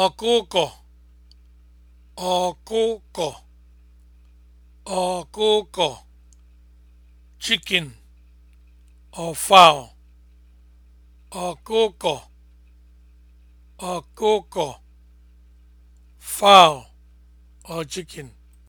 ọkụkọ ọkụkọ ọkụkọ chicken or ọkụkọ ọkụkọ fowl or chicken